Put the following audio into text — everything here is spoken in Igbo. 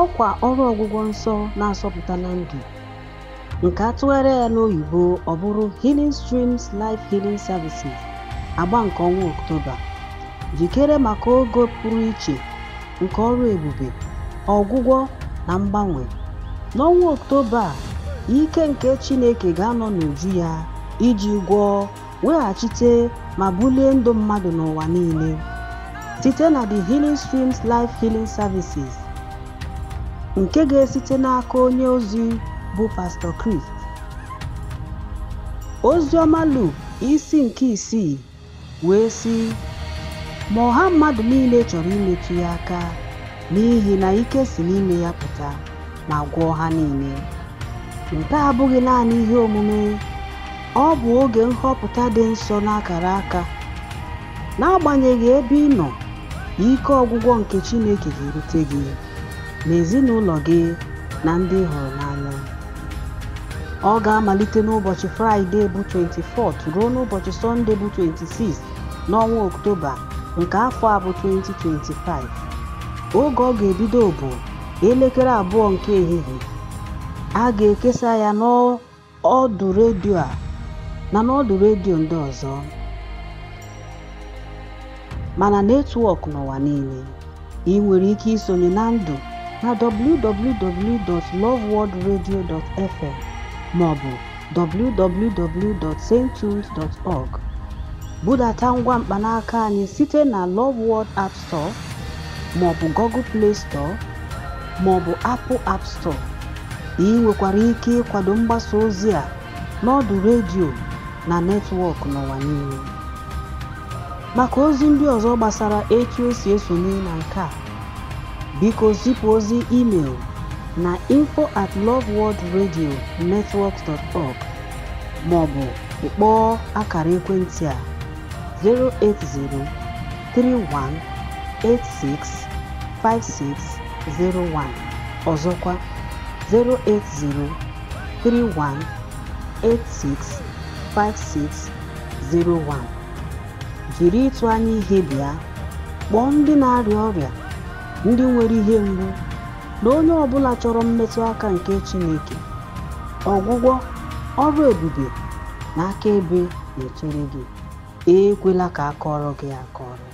ọkwa ọrụ ọgwụgwọ nsọ na-asọpụta na ndụ nke a ya n'oyibo ọ bụrụ Healing Streams Life Healing Services agba nke ọnwa Oktoba, jikere maka oge pụrụ iche nke ọrụ ebube ọgwụgwọ na mgbanwe n'ọnwa a, ike nke Chineke ga-anọ n'uju ya iji gwọọ weghachite ma bulie ndụ mmadụ n'ụwa niile site na The Healing Streams Life Healing Services nke ga-esite n'aka onye ozi bụ Pastọ Chris. Ozi Luke isi nke isii wee sị ma ọha mmadụ niile chọrọ imetu ya aka n'ihi na ike si n'ime ya pụta ma gwọọ ha niile nke abụghị naanị ihe omume ọ bụ oge nhọpụta dị nsọ n'akara aka n'agbanyeghị ebe ị nọ ike ọgwụgwọ nke Chineke ga-erute gị na ezinụlọ gị na ndị ị hụrụ n'anya ọ ga-amalite n'ụbọchị fraịdee bụ 24th ruo n'ụbọchị sọnde bụ 26 n'ọnwa oktoba nke afọ a bụ 2025 oge ọ ga-ebido bụ elekere abụọ nke ehihie a ga-ekesa ya n'ọdụ redio a na n'ọdụ redio ndị ọzọ mana netwọk n'ụwa niile ị nwere ike isonye na ndụ na www.loveworldradio.fm maọbụ www.sainttunes.org. Budata ngwa mkpanaka anyị site na Love World App Store maọbụ Google Play Store maọbụ Apple App Store. Ị nwekwara ike ịkwado mgbasa ozi a n'ọdụ redio na netwọk n'ụwa niile. Maka ozi ndị ọzọ gbasara etu esi esonye na nke a Biko zipụ ozi email na info@loveworldradionetwork.org maọbụ kpọọ akara ekwentị a 080 Ọzọkwa 080 Jiri ịtụ anya ihe bịa kpọọ ndị na-arịa ọrịa ndị nwere ihe mgbu na onye ọbụla chọrọ mmetụ aka nke Chineke, ọgwụgwọ, ọrụ ebube na akaebe na-echere gị. Ekwela ka akọrọ gị akọrọ.